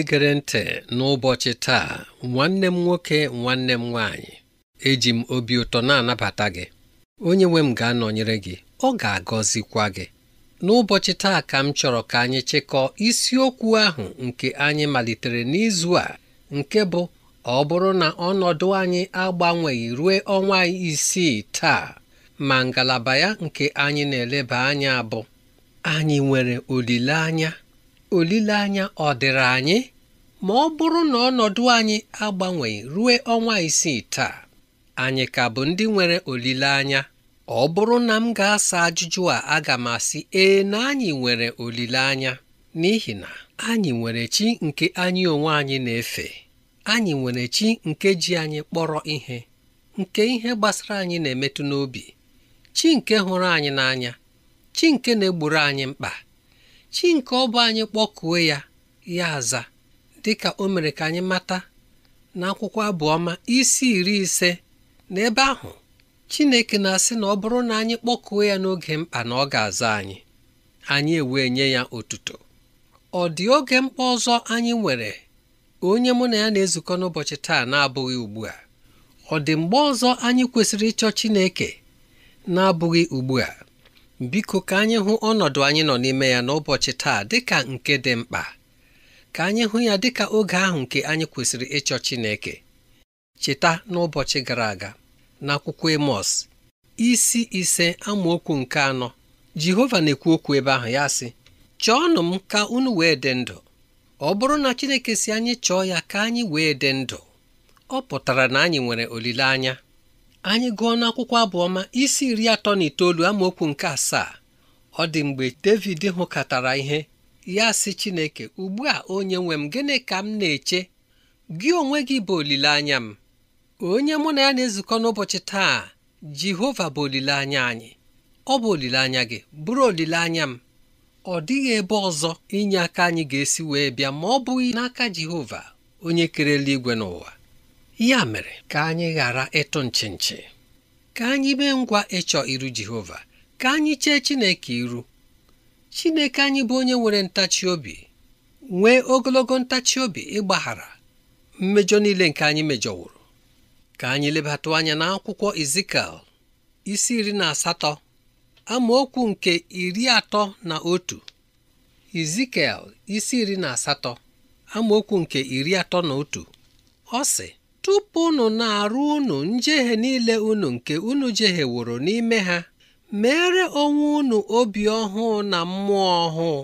onye gere ntị n'ụbọchị taa nwanne m nwoke nwanne m nwaanyị eji m obi ụtọ na-anabata gị onye nwe m ga-anọnyere gị ọ ga-agọzikwa gị n'ụbọchị taa ka m chọrọ ka anyị chịkọọ isiokwu ahụ nke anyị malitere n'izu a nke bụ ọ bụrụ na ọnọdụ anyị agbanweghị ruo ọnwa isii taa ma ngalaba ya nke anyị na-eleba anya bụ anyị nwere olileanya olileanya ọ dịrị anyị ma ọ bụrụ na ọnọdụ anyị agbanweghị ruo ọnwa isii taa anyị ka bụ ndị nwere olileanya ọ bụrụ na m ga-asa ajụjụ a aga m asị ee na anyị nwere olileanya n'ihi na anyị nwere chi nke anyị onwe anyị na-efe anyị nwere chi nke ji anyị kpọrọ ihe nke ihe gbasara anyị na-emetụ n'obi chi nke hụrụ anyị n'anya chi nke na-egburu anyị mkpa chi nke ọ bụ anyị kpọkuo ya ya aza dịka o mere ka anyị mata na akwụkwọ abụọma isi iri ise na ebe ahụ Chineke na-asị na ọ bụrụ na anyị kpọkuo ya n'oge mkpa na ọ ga-aza anyị anyị ewee nye ya otuto ọ dị oge mkpa ọzọ anyị nwere onye mụ na ya na-ezukọ n'ụbọchị taa na-abụghị ugbu a ọ dị mgbe ọzọ anyị kwesịrị ịchọ Chineke na-abụghị ugbu a biko ka anyị hụ ọnọdụ anyị nọ n'ime ya n'ụbọchị taa dịka nke dị mkpa ka anyị hụ ya dịka oge ahụ nke anyị kwesịrị ịchọ Chineke cheta n'ụbọchị gara aga n'akwụkwọ Emọs isi ise amaokwu nke anọ Jehova na-ekwu okwu ebe ahụ ya sị chọọnụ m ka unu wee dị ndụ ọ bụrụ na Chineke si anyị chọọ ya ka anyị wee dị ndụ ọ pụtara na anyị nwere olileanya anyị gụọ n'akwụkwọ abụọma isi iri atọ na itoolu amaokwu nke asaa ọ dị mgbe David hụkatara ihe ya sị Chineke ugbu a onye nwe m gịnị ka m na-eche gị onwe gị bụ olileanya m onye mụ na ya na-ezukọ n'ụbọchị taa Jehova bụ olileanya anyị ọ bụ olileanya gị bụrụ olileanya m ọ dịghị ebe ọzọ inye aka anyị ga-esi wee bịa ma ọ bụghị n'aka Jehova onye kerela igwe n'ụwa ya mere ka anyị ghara ịtụ nchi ka anyị mee ngwa ịchọ iru Jehova ka anyị chee Chineke iru Chineke anyị bụ onye nwere ntachi obi nwee ogologo ntachi obi ịgbaghara mmejọ niile nke anyị mejọwuru ka anyị lebata anya na akwụkwọ isi iri na asatọ amaokwu nke iri atọ na otu Ezikiel isi iri na asatọ amaokwu nke iri atọ na otu ọ sị tupu unu na-arụ unu njehie niile unu nke unu jeheworo n'ime ha mere onwe unu obi ọhụụ na mmụọ ọhụụ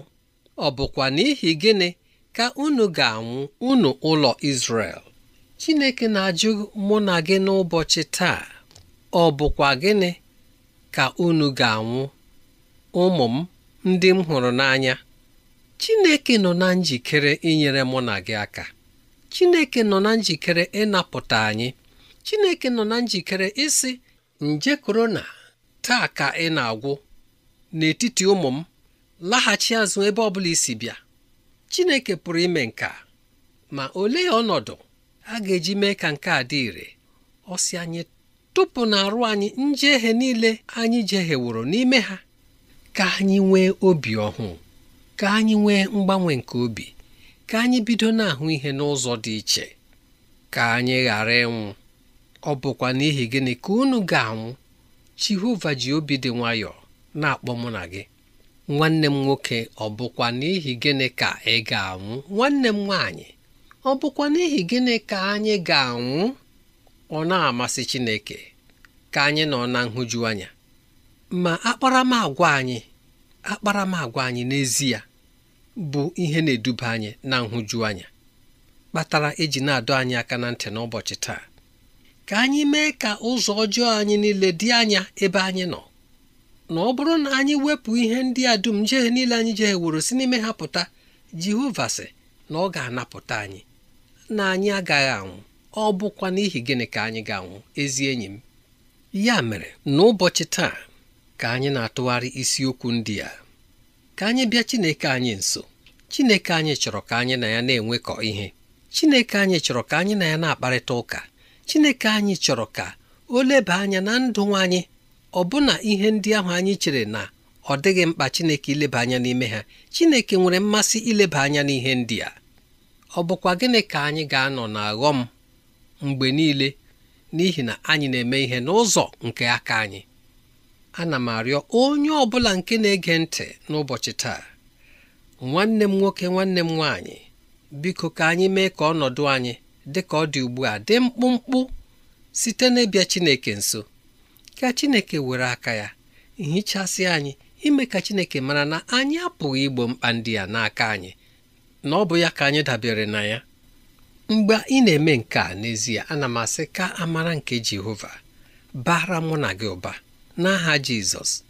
ọ bụkwa n'ihi gịnị ka unu ga-anwụ unu ụlọ isrel Chineke na-ajụ mụ na gị n'ụbọchị taa ọ bụkwa gịnị ka unu ga-anwụ ụmụ m ndị m hụrụ n'anya Chineke nọ na njikere inyere mụ na gị aka Chineke nọ na njikere ịnapụta anyị Chineke nọ na njikere isi nje korona taa ka ị na-agwụ n'etiti ụmụ m laghachi azụ ebe ọ bụla isi bịa Chineke pụrụ ime nke a ma olee ọnọdụ a ga-eji mee ka nke a dị ire ọ si anyị tụpụ arụ anyị njehie niile anyị jeheworo n'ime ha ka anyị nwee obi ọhụụ ka anyị nwee mgbanwe nke obi ka anyị bido na-ahụ ihe n'ụzọ dị iche ka anyị ghara ịnwụ ọ bụkwa n'ihi gịnị ka unu ga-anwụ Jehova ji obi dị nwayọọ na-akpọ mụ na gị nwanne m nwoke ọ bụkwa n'ihi gịnị ka ị ga-anwụ nwanne m nwaanyị ọ bụkwa n'ihi gịnị ka anyị ga-anwụ ọ na-amasị Chineke ka anyị nọ na nhụju anya ma akparamagwa anyị akparamagwa anyị n'ezie bụ ihe na-eduba anyị na nhụju anya kpatara eji na-adọ anyị aka na ntị n'ụbọchị taa ka anyị mee ka ụzọ ọjọọ anyị niile dị anya ebe anyị nọ na ọ bụrụ na anyị wepụ ihe ndị a dum jehe niile anyị jeheworo si n'ime ha pụta Jehova sị na ọ ga-anapụta anyị na anyị agaghị anwụ ọ bụkwa n'ihi gịnị ka anyị ga-anwụ ezi enyi m ya mere n'ụbọchị taa ka anyị na-atụgharị isiokwu ndị a ka anyị bịa Chineke anyị nso Chineke anyị chọrọ ka anyị na ya na-enwekọ ihe Chineke anyị chọrọ ka anyị na ya na-akparịta ụka Chineke anyị chọrọ ka o leba anya na ndụ anyị ọbụna ihe ndị ahụ anyị chere na ọ dịghị mkpa Chineke ileba anya n'ime ha Chineke nwere mmasị ileba anya n'ihe ndị a ọ bụkwa gịnị ka anyị ga-anọ na aghọm mgbe niile n'ihi na anyị na-eme ihe n'ụzọ nke aka anyị ana m arịọ onye ọ bụla nke na-ege ntị n'ụbọchị taa nwanne m nwoke nwanne m nwaanyị biko ka anyị mee ka ọnọdụ anyị dị ka ọ dị ugbu a dị mkpụmkpụ site n'ịbịa Chineke nso ka Chineke were aka ya hichasị anyị ime ka Chineke mara na anyị apụghị igbo mkpa ndị n'aka anyị na ọ bụ ya ka anyị dabere na ya mgbe ị na-eme nke a n'ezie ana m asị ka amara nke Jehova bara mụ na gị ụba n'aha Jizọs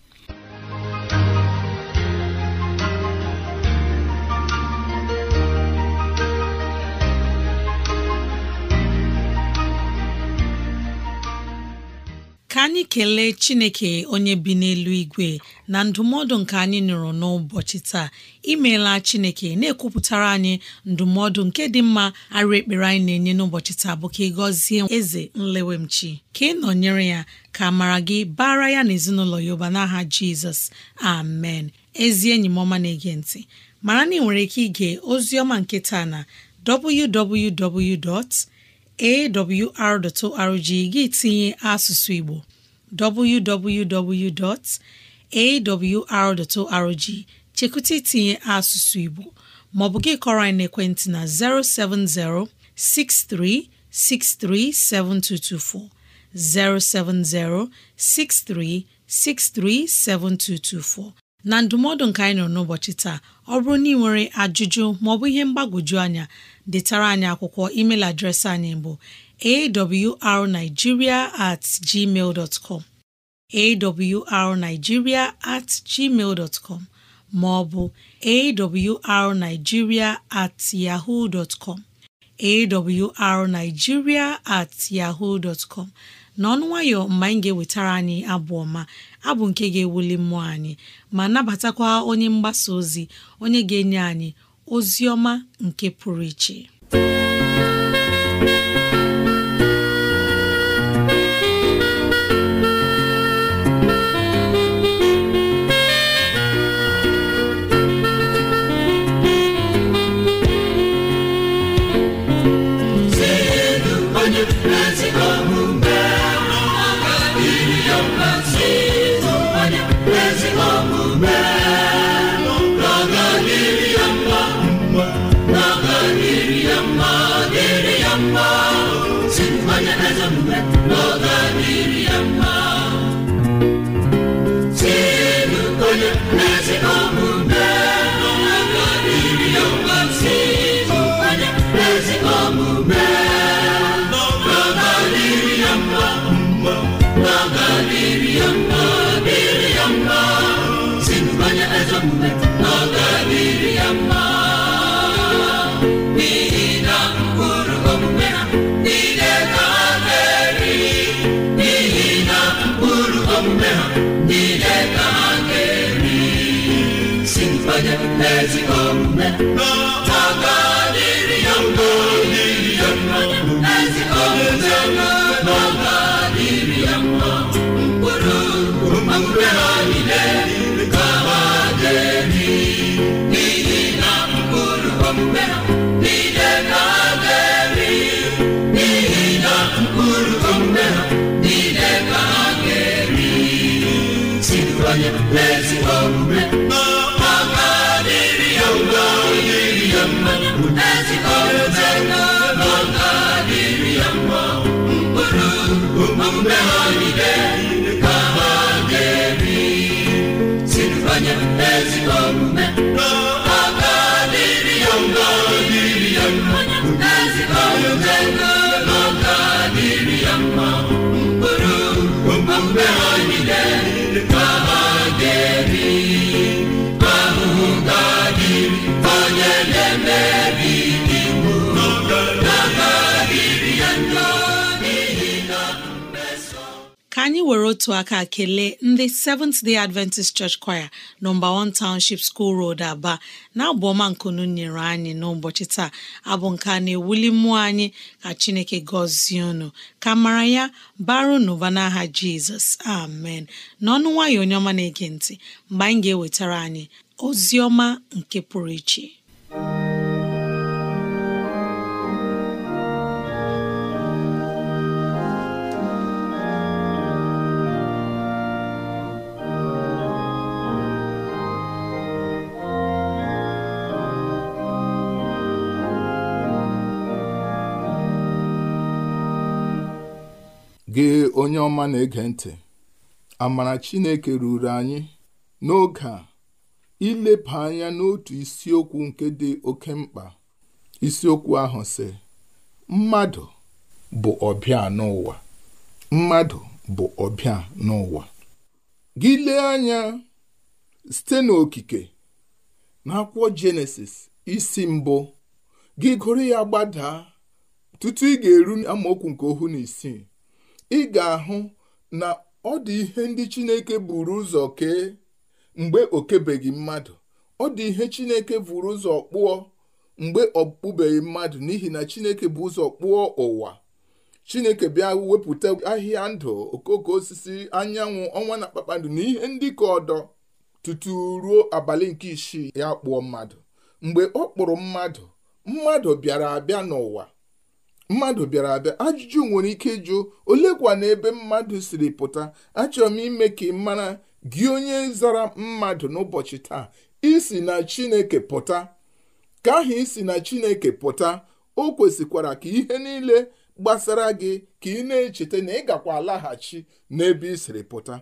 ka anyị kelee chineke onye bi n'elu igwe na ndụmọdụ nke anyị nụrụ n'ụbọchị taa imeela chineke na-ekwupụtara anyị ndụmọdụ nke dị mma arụ ekpere anyị na-enye n'ụbọchị taa bụ ka ị gọzie eze nlewemchi ka ị nọnyere ya ka mara gị bara ya na ezinụlọ ya ụba n'aha jizọs amen ezi enyi m ọma na-ege ntị mara na ị nwere ike ige ozi ọma nke taa na www. awr.org gị tinye asụsụ Igbo www.awr.org chekwute itinye asụsụ Igbo ma ọ bụ gị kọrọ anyị n'ekwentị na 070 6363 7224 070 6363 7224 na ndụmọdụ nka anyị nọ n'ụbọchị taa ọ bụrụ na ị nwere ajụjụ maọbụ ihe mgbagwoju anya detara anyị akwụkwọ email adreesị anyị bụ awrnigeria at gmail dot com awrnigeria at gmail com ma ọ bụ awrnigeria at yahoo dot com awrnigeria at yahoo dot com n'ọnụ nwayọ mgbe anyị ga-ewetara anyị abụ ọma abụ nke ga-ewuli mmụọ anyị ma nabatakwa onye mgbasa ozi onye ga-enye anyị Ozioma nke pụrụ iche Sensin bana azammet, Mola Miriam niile ka si anyị were otu aka kelee ndị Seventh Day Adventist Church Choir nọmba 1 Township School Road Aba na-abụ ọma nkunu nyere anyị n'ụbọchị taa abụ nke a na-ewuli mmụọ anyị ka Chineke gọzie unu ka mara ya baru n'ụba n'aha Jizọs amen n'ọnụ nwayọ onye ọma na-ege ntị mgbe anyị ga-ewetara anyị ozi ọma nke pụrụ iche onye ọma na-ege ntị amara Chineke ruru anyị n'oge a ileba anya n'otu isiokwu nke dị oke mkpa isiokwu ahụ sị mmadụ bụ ọbịa n'ụwa mmadụ bụ ọbịa n'ụwa gị lee anya site n'okike n'akwụkwọ Jenesis isi mbụ gị gụrụ ya gbadaa tutu ị ga-eru amaokwu nke ohu na isii ị ga-ahụ na ọ dị ihe ndị Chineke buru ụzọ kee mgbe o kebeghị mmadụ ọ dị ihe Chineke buru ụzọ kpụọ mgbe ọ kpụbeghị mmadụ n'ihi na Chineke bụ ụzọ kpụọ ụwa Chineke bịa wepụta ahịhịa ndụ okoko osisi anyanwụ ọnwa na kpakpando na ihe ndị ka ọdọ tutu ruo abalị nke isii ya kpụọ mmadụ mgbe ọ kpụrụ mmadụ mmadụ bịara abịa n'ụwa mmadụ bịara abịa ajụjụ nwere ike ịjụ olekwa na ebe mmadụ siri pụta achọrọ m ime ka ị mara gị onye zara mmadụ n'ụbọchị taa isi na chineke pụta ka ahụ isi na chineke pụta o kwesịkwara ka ihe niile gbasara gị ka ị na-echeta na ịgakwa gakwa alaghachi n'ebe ị siri pụta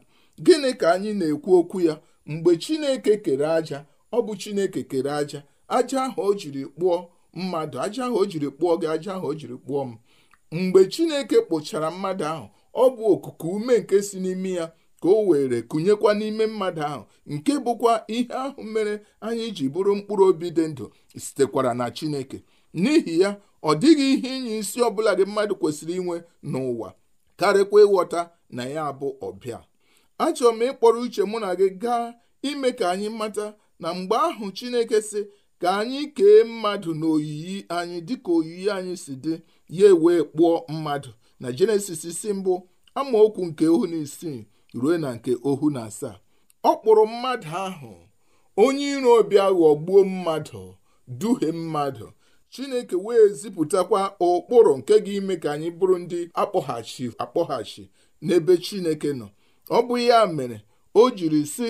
gịnị ka anyị na-ekwu okwu ya mgbe chineke kere aja ọ bụ chineke kere aja aja ahụ o jiri kpụọ mmadụ aja ahụ o jiri kpụọ gị aja ahụ o jiri kpụọ m mgbe chineke kpụchara mmadụ ahụ ọ bụ okuku ume nke si n'imi ya ka o were kụnyekwa n'ime mmadụ ahụ nke bụkwa ihe ahụ mere anyị ji bụrụ mkpụrụ obi dị ndụ sitekwara na chineke n'ihi ya ọ dịghị ihe inye isi ọbụla gị mmadụ kwesịrị inwe n'ụwa karịkwa ịghọta na ya bụ ọbịa achọrọ m ịkpọrọ uche mụ na gị gaa ime ka anyị mata na mgbe ahụ chineke sị ka anyị kee mmadụ n'oyiyi anyị dịka oyiyi anyị si dị ya wee kpụọ mmadụ na jenesis si mbụ amaokwu nke ohu na isii ruo na nke ohu na asaa ọ kpụrụ mmadụ ahụ onye iro bịa ghọgbuo mmadụ duhie mmadụ chineke wee zipụtakwa ụkpụrụ nke ga-ime ka anyị bụrụ ndị akpọghachi akpọghachi n'ebe chineke nọ ọ bụ ya mere o jiri si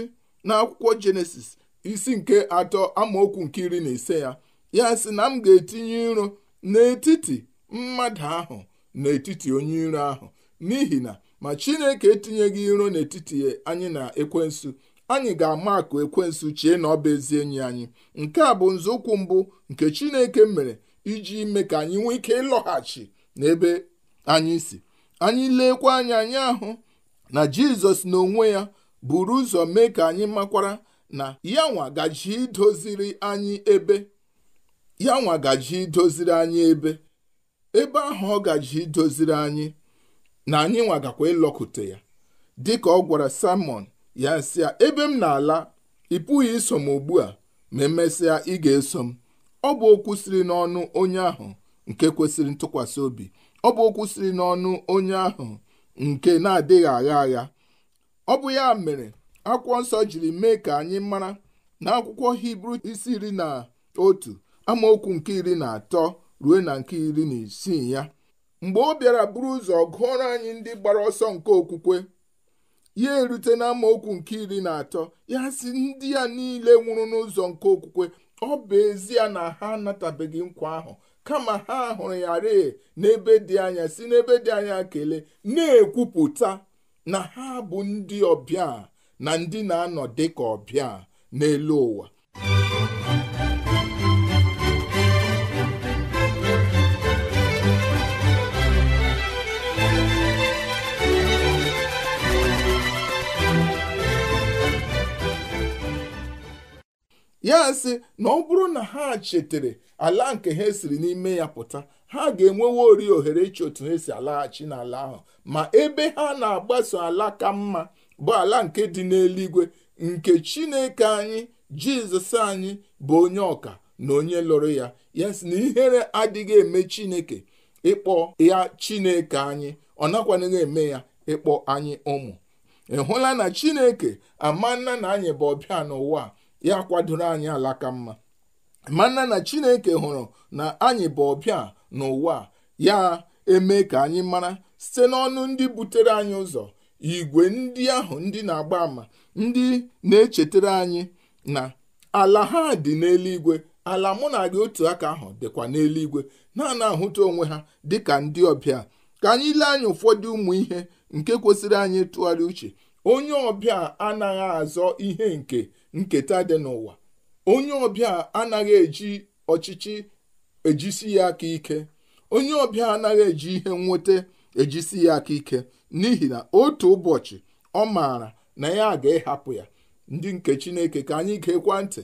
n'akwụkwọ jenesis isi nke atọ amaokwu nke iri na ise ya ya sị na m ga-etinye iro n'etiti mmadụ ahụ n'etiti onye iro ahụ n'ihi na ma chineke etinyeghị iro n'etiti anyị na ekwensu anyị ga-ama akụ ekwensu chie na ọ bụ ezi enyi anyị nke a bụ nzọụkwụ mbụ nke chineke mere iji mee ka anyị nwee ike ịlọghachi n'ebe anyị si anyị leekwa anya anyị ahụ na jizọs na onwe ya buru ụzọ mee ka anyị makwara na ya gaji idoziri anyị ebe idoziri anyị ebe ebe ahụ ọ gaji idoziri anyị na anyị nwagakwa gakwa ya ya dịka ọ gwara salmon ya sị ya ebe m na-ala ị pụghị iso m ugbu a ma emesịa ị ga-eso m ọ bụ okwu siri n'ọnụ onye ahụ nke kwesịrị ntụkwasị obi ọ bụ okwu siri n'ọnụ onye ahụ nke na-adịghị agha agha ọ bụ ya mere akwụkwọ nsọ jiri mee ka anyị mara na akwụkwọ hibru isi iri na otu amaokwu nke iri na atọ ruo na nke iri na isii ya mgbe ọ bịara buru ụzọ gụọrọ anyị ndị gbara ọsọ nke okwukwe ya erute na amaokwu nke iri na atọ ya si ndị ya niile nwụrụ n'ụzọ nke okwukwe ọ bụ ezie na ha anatabeghị nkwa ahụ kama ha hụrụ ya ree n'ebe dị anya si n'ebe dị anya kelee na-ekwupụta na ha bụ ndị ọbịa na ndị na-anọ dị ka ọbịa n'elu ụwa ya sị na ọ bụrụ na ha chetere ala nke ha siri n'ime ya pụta ha ga-enwewe ori ohere ịchọ otu ha alaghachi n'ala ahụ ma ebe ha na-agbaso ala ka mma bụ ala nke dị n'eluigwe nke chineke anyị jizọs anyị bụ onye ọka na onye lụrụ ya ya sị na ihere adịghị eme chineke ịkpọ ya chineke anyị ọ nakwanaghị eme ya ịkpọ anyị ụmụ ị hụla na chineke amanna na anyị bụ ọbịa n'ụwa ya kwadoro anyị alaka mma manna na chineke hụrụ na anyị bụ ọbịa n'ụwa ya eme ka anyị mara site n'ọnụ ndị butere anyị ụzọ igwe ndị ahụ ndị na-agba àmà ndị na-echetara anyị na ala ha dị n'eluigwe ala mụ na gị otu aka ahụ dịkwa n'eluigwe na-ana ahụta onwe ha dị ka ndị ọbịa ka anyị lee anya ụfọdụ ụmụ ihe nke kwesịrị anyị tụgharị uche onye ọbịa anaghị azọ ihe nke nketa dị n'ụwa onye ọbịa anaghị eji ọchịchị ejisi ya aka ike onye ọbịa anaghị eji ihe nweta ejisi ya aka ike n'ihi na otu ụbọchị ọ maara na ya ga-ehapụ ya ndị nke chineke ka anyị gekwa ntị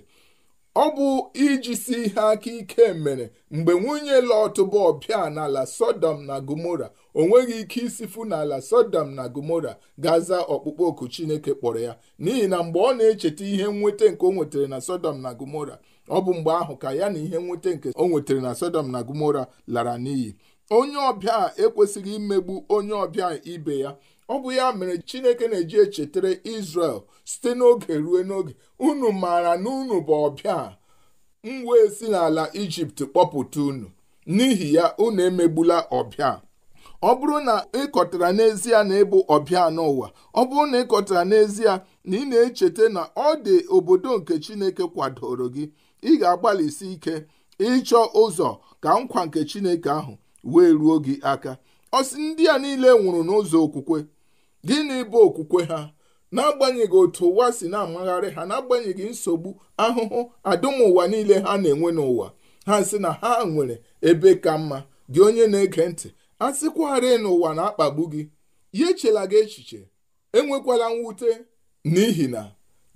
ọ bụ ijisi ihe aka ike mere mgbe nwunye Lọt bụ ọbịa n'ala Sodom na Gomora o nweghị ike isifu n'ala Sodom na Gomora ga-aza ọkpụkpọ oku Chineke kpọrọ ya n'ihi na mgbe ọ na-echeta ihe nweta nke o nwetara na Sodom na Gomora ọ bụ mgbe ahụ ka ya na ihe nweta nke o nwetara na Sodom na Gomora lara n'iyi onye ọbịa ekwesịghị imegbu onye ọbịa ibe ya ọ bụ ya mere chineke na-eji echetara Israel site n'oge ruo n'oge unu maara na unu bụ ọbịa m wee si n'ala Ijipt kpọpụta unu n'ihi ya unu emegbula ọbịa ọ bụrụ na ịkọtara n'ezie na ịbụ ọbịa n'ụwa ọ bụrụ na ịkọtara n'ezie na ị na-echeta na ọ dị obodo nke Chineke kwadoro gị ị ga-agbalịsi ike ịchọ ụzọ ka nkwa nke Chineke ahụ wee ruo gị aka ọsị ndị a niile nwụrụ n'ụzọ okwukwe gịnị bụ okwukwe ha n'agbanyeghị otu ụwa si na-amagharị ha n'agbanyeghị nsogbu ahụhụ adụmụwa niile ha na-enwe n'ụwa ha sị na ha nwere ebe ka mma gị onye na-ege ntị a sịkwarị n'ụwa na-akpagbu gị ya echela gị echiche enwekwala mwute n'ihi na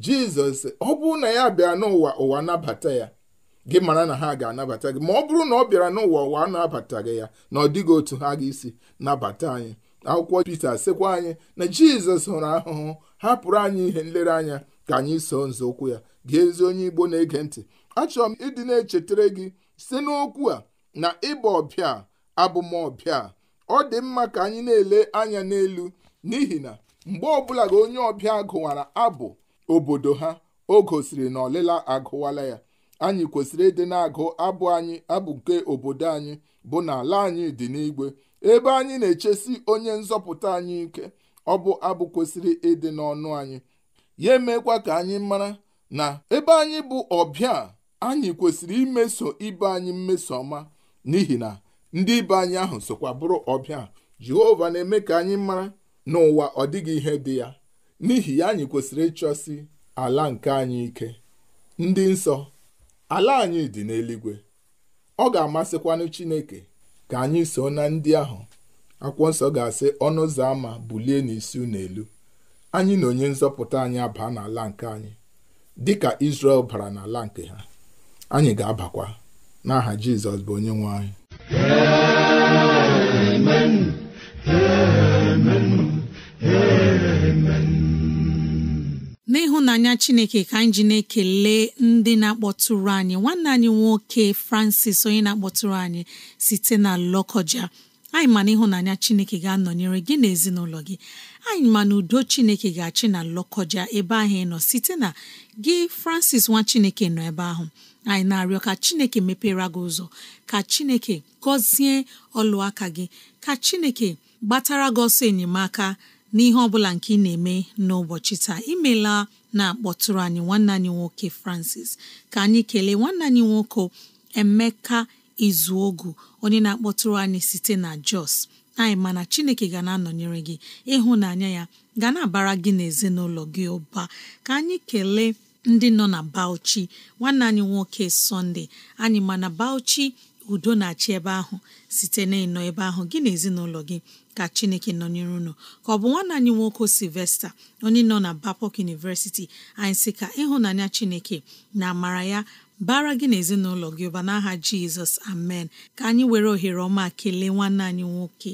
jizọs ọ bụrụ na ya bịa n'ụwa ụwa nabata ya gị mara na ha ga-anabata gị ma ọ bụrụ na ọ bịara n'ụwa ụwa a gị ya na ọ dịghị otu ha ga-esi nabata anyị akwụkwọ Pita sekwa anyị na Jizọs hụrụ ahụhụ hapụrụ anyị ihe nlereanya ka anyị so nzọụkwụ ya gị ezi onye Igbo na-ege ntị achọrọ m ịdị na-echetara gị site n'okwu a na ịba ọbịa abụmọbịa ọ dị mma ka anyị na-ele anya n'elu n'ihi na mgbe ọbụla gị onye ọbịa gụwara abụ obodo ha o gosiri na ọlịla agụwala ya anyị kwesịrị ịdị na-agụ abụ anyị abụ nke obodo anyị bụ na ala anyị dị n'igwe ebe anyị na-echesi onye nzọpụta anyị ike ọ bụ abụ kwesịrị ịdị n'ọnụ anyị ya emekwa ka anyị mara na ebe anyị bụ ọbịa anyị kwesịrị imeso ibe anyị mmeso ọma n'ihi na ndị ibe anyị ahụ sokwa bụrụ ọbịa Jehova na-eme ka anyị mara n'ụwa ọ dịghị ihe dị ya n'ihi ya anyị kwesịrị ịchọsi ala nke anyị ike ndị nsọ ala anyị dị n'eluigwe ọ ga-amasịkwanụ Chineke ka anyị so na ndị ahụ akwụkwọ nsọ ga-asị ọnụ ụzọ ámá bulie n'isi unu elu anyị na onye nzọpụta anyị abaa n'ala nke anyị dịka Izrel bara n'ala nke ha anyị ga-abakwa n'aha Jizọs bụ onye nwe anyị Amen. Amen. Amen. n'ịhụnanya chineke ka anyị ji na-ekele ndị na-akpọtụrụ anyị nwanne anyị nwoke francis onye na-akpọtụrụ anyị site na lọkọja anyị ma na ịhụnanya chineke ga-anọnyere gị na ezinụlọ gị anyị ma na udo chineke ga-achị na lọkọja ebe ahụ ị nọ site na gị francis nwa chineke nọ ebe ahụ anyị na-arịọ ka chineke mepere gị ụzọ ka chineke gọzie ọlụ aka gị ka chineke gbatara gị ọsọ enyemaka n'ihe ọ bụla nke ị na-eme n'ụbọchị taa imela na-akpọtụrụ anyị nwanne anyị nwoke Francis ka anyị kelee nwanne anyị nwoke Emeka Izuogu onye na-akpọtụrụ anyị site na Jos anyị mana Chineke ga na-anọnyere gị ịhụ ịhụnanya ya ga na-abara gị n'ezinụlọ gị ụba ka anyị kelee ndị nọ na Bauchi nwanne anyị nwoke sọnde anyị mana Bauchi udo na-achị ebe ahụ site na ịnọ ebe ahụ gị na ezinụlọ gị ka chineke nọnyere unu ka ọ bụ nwanne anyị nwoke silvester onye nọ na bapok University anyị si ka ịhụnanya chineke na amara ya bara gị na ezinụlọ gị ụba n'aha jizọs amen ka anyị were ohere ọma kelee nwanne anyị nwoke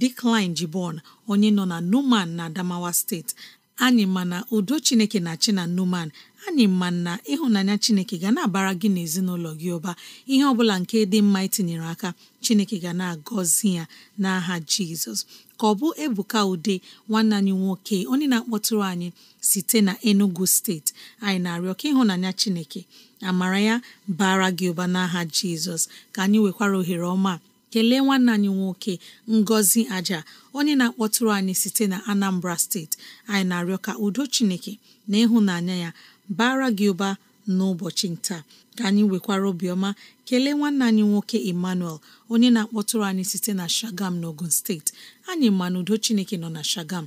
dikline Jibon onye nọ na Numan na Adamawa steeti anyị na udo chineke na china Numan anyị ma na ịhụnanya chineke ga na-abara gị n'ezinụlọ gị ụba ihe ọbụla nke dị mma itinyere aka chineke ga na-agọzi ya n'aha jizọs ka ọ bụ ebuka ude nwanne anyị nwoke onye na-akpọtụrụ anyị site na enugu steeti anyị na-arịọ ka ịhụnanya chineke amara ya bara gị ụba n'aha jizọs ka anyị nwekwara ohere ọma kelee nwanne anyị nwoke ngọzi aja onye na-akpọtụrụ anyị site na anambra steeti anyị na-arịọ ka udo chineke na ịhụnanya ya bara gị ụba n'ụbọchị nta ka anyị nwekwara obiọma kelee nwanne anyị nwoke emmanuel onye na-akpọtụrụ anyị site na shagam n'ogun steeti anyị ma na udo chineke nọ na shagam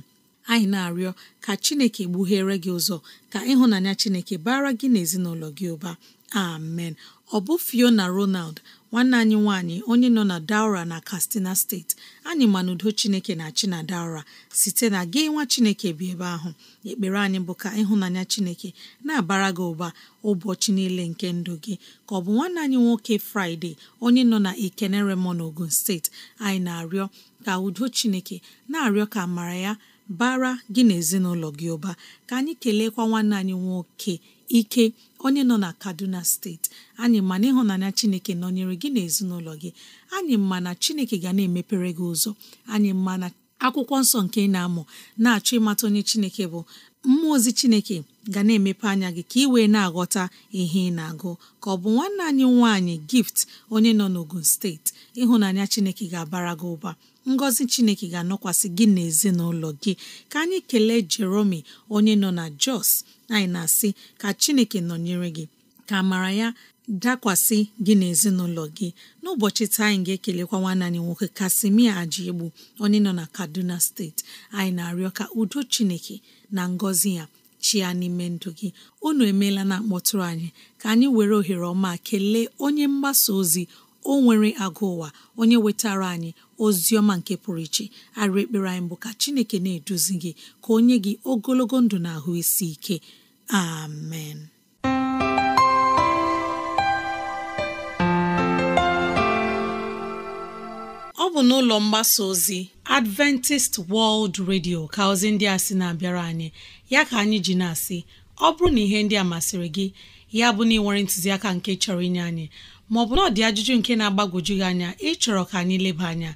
anyị na-arịọ ka chineke gbughere gị ụzọ ka ịhụnanya chineke bara gị na ezinụlọ gị ụba amen ọ bụ fiona ronald nwanne anyị nwanyị onye nọ na daura na kastina steeti anyị ma na udo chineke na-achị na daura site na gị nwa chineke bi ebe ahụ ekpere anyị bụ ka ịhụnanya chineke na-abara gị ụba ụbọchị niile nke ndụ gị ka ọ bụ nwanne anyị nwoke fraịde onye nọ na ikeneremo na ogun steeti anyị na-arịọ ka udo chineke na-arịọ ka amara ya bara gị na ezinụlọ gị ụba ka anyị keleekwa nwanne anyị nwoke ike onye nọ na kaduna steeti anyị ma na ịhụnanya chineke nọnyere gị na ezinụlọ gị anyị ma na chineke ga na-emepere gị ụzọ anyị ma na akwụkwọ nsọ nke ị na-amụ na-achọ ịmata onye chineke bụ mmụọ ozi chineke ga na-emepe anya gị ka ị wee na-aghọta ihe ị na-agụ ka ọ bụ nwanne anyị nwaanyị gift onye nọ n'ogun steeti ịhụnanya chineke ga-abara gị ụba ngọzi chineke ga-anọkwasị gị na ezinụlọ gị ka anyị kelee jeromi onye nọ na Jos anyị na-asị ka chineke nọnyere gị ka amara ya dakwasị gị na ezinụlọ gị n'ụbọchị taa anyị ga-ekelekwa nwanne anyị nwoke Kasimia igbu onye nọ na Kaduna steeti anyị na-arịọ ka udo chineke na ngọzi ya chia n'ime ndụ gị unu emeela na-akpọtụrụ anyị ka anyị were ohere ọma kelee onye mgbasa ozi o nwere agụ ụwa onye wetara anyị ozi ọma nke pụrụ iche arị ekpere anyị bụ ka chineke na-eduzi gị ka onye gị ogologo ndụ na ahụ isi ike amen ọ bụ n'ụlọ mgbasa ozi Adventist World Radio ka ozi ndị a sị na-abịara anyị ya ka anyị ji na-asị ọ bụrụ na ihe ndị a masịrị gị ya bụ na ị nwere ntụziaka nke chọrọ inye anyị maọbụ na ọ dị ajụjụ nke na-agbagwoju gị anya ịchọrọ ka anyị leba anya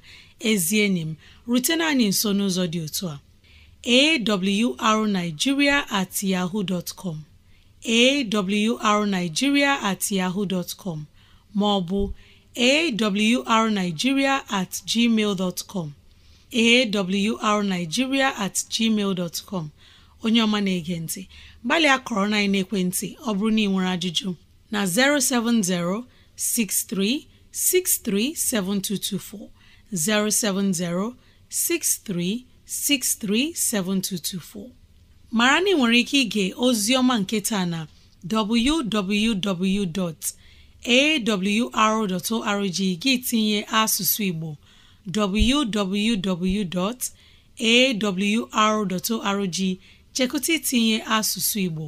ezi enyi m rutena anyị nso n'ụzọ dị otu a awrnigeria at yahoo dot com awrnigeria at yahoo dot com maọbụ awrnigeria at gmail dot com awrnigeria at gmail dot com onye ọma na-ege ntị gbalịa kọrọ na ekwentị ọ bụrụ na ị nwere ajụjụ na 070 07063637224 mara na ị nwere ike ige Ozioma nketa nke taa na www.awr.org gị tinye asụsụ Igbo www.awr.org chekụta itinye asụsụ Igbo